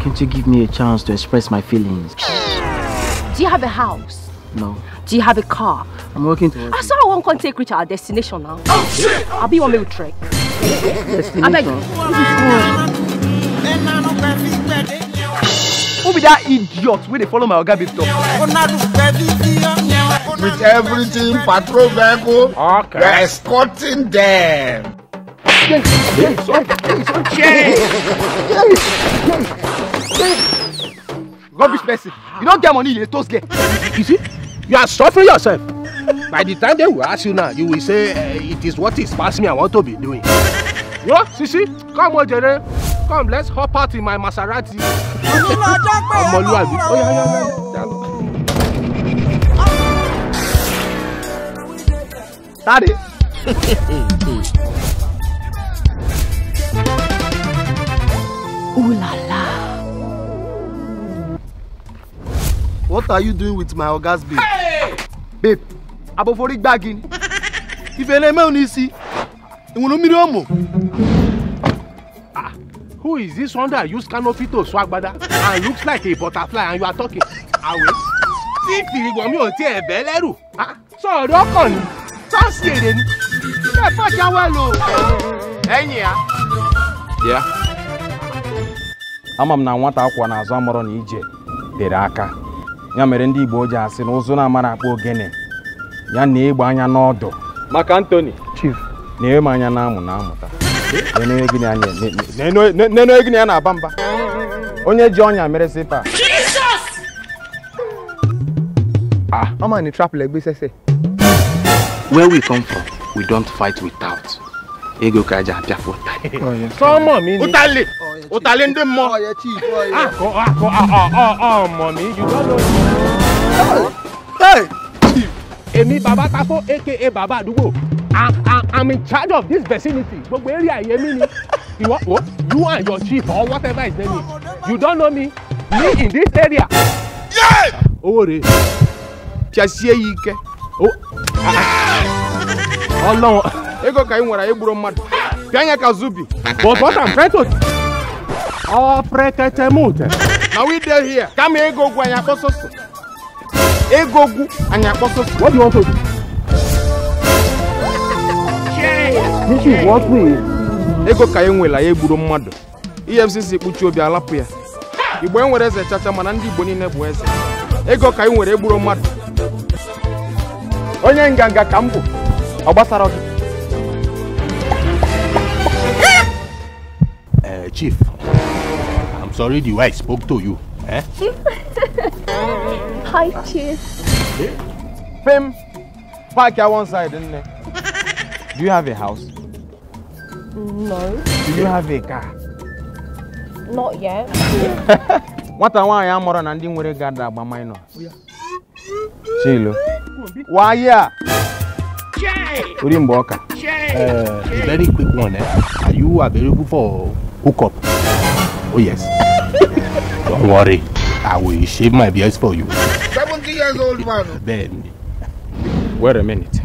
can't you give me a chance to express my feelings? Do you have a house? No. Do you have a car? I'm working towards I saw one can take reach our destination now. Oh shit! I'll be one way with Trek. Destination? I beg Who be that idiot Where they follow my Oga With everything, patrol vehicle, oh. okay. we're escorting them. Yes, yes, yes, yes, yes. yes. yes. yes. Rubbish person. You don't get money, you toast get. You see, you are suffering yourself. By the time they will ask you now, you will say, uh, it is what is past me I want to be doing. Yo, Sisi, come on, Jere. Come, let's hop out in my Maserati. Ọmọlúwàbí. Oh, yeah, yeah, yeah. Tade. What are you doing with my ogas babe? Hey! Babe, abofori gbagi ni. Ife na-eme unu isi. Enwere mmiri ụmụ. Ah, who is this one that use canopy to sew agbada and looks like a butterfly and you are talking? I tí fìrìgbọ̀n mi ò ebe ẹ̀ bẹ́ lẹ́rù. Ah, Sọ̀rọ̀ ọkàn ni, sọ́ọ̀sì èrè ni, ṣé ẹ fọ́jà wá lò? Yeah? ya. Ya. Ama m na nwata akwa na azụ amọrọ na ije bere aka. ya mere ndị Igbo ji asị na ụzụ na-amara akpa ogene ya na ịgba anya n'ọdụ maka Anthony chief na ewe m anya na-amụ na amụta n'enweghị gịnị ya na-aba mba onye ji ọnya mere sipa Ah, I'm in a trap like this, say. Where we come from, we don't fight without. Ego kaja apia for time. Oh, o ta lé ndé mọ. akọ akọ ọmọ mi you don't know me. èmi bàbá tako aka bàbá àdúgbò i'm in charge of this vicinity gbogbo area yẹmi ni ìwọ o you and your chief or whatever is there? you don't know me me in this area. owó rèé tí a sie yìí kẹ ọlọ́wọ́ ego ka ị nwere igburu mmadụ pịa anya ka zubi but what I'm trying to ọ pretetemute na we dey here kama egogwu anyị akpọ ego egogwu anyị akpọ soso what do you want to do? this is what we ego ka e nwela ya egburu mmadụ efcc kpuchi obi alapụ ya igbo e nwere eze chacha mana ndị igbo niile bụ eze ego ka e nwere egburu mmadụ onye nganga ka m ọ gbasara gị eh, chief already why I spoke to you. Eh? Hi, Chief. Hey? Eh? Fame, park at one side, isn't it? Do you have a house? No. Do you have a car? Not yet. What I want, I am more than anything with a guard that by my nose. Chilo. Why, yeah? Jay. Uh, very quick one, eh? Are you available for hookup? Oh yes. Don't worry. I will shave my beard for you. 70 years old man. Then. Wait a minute.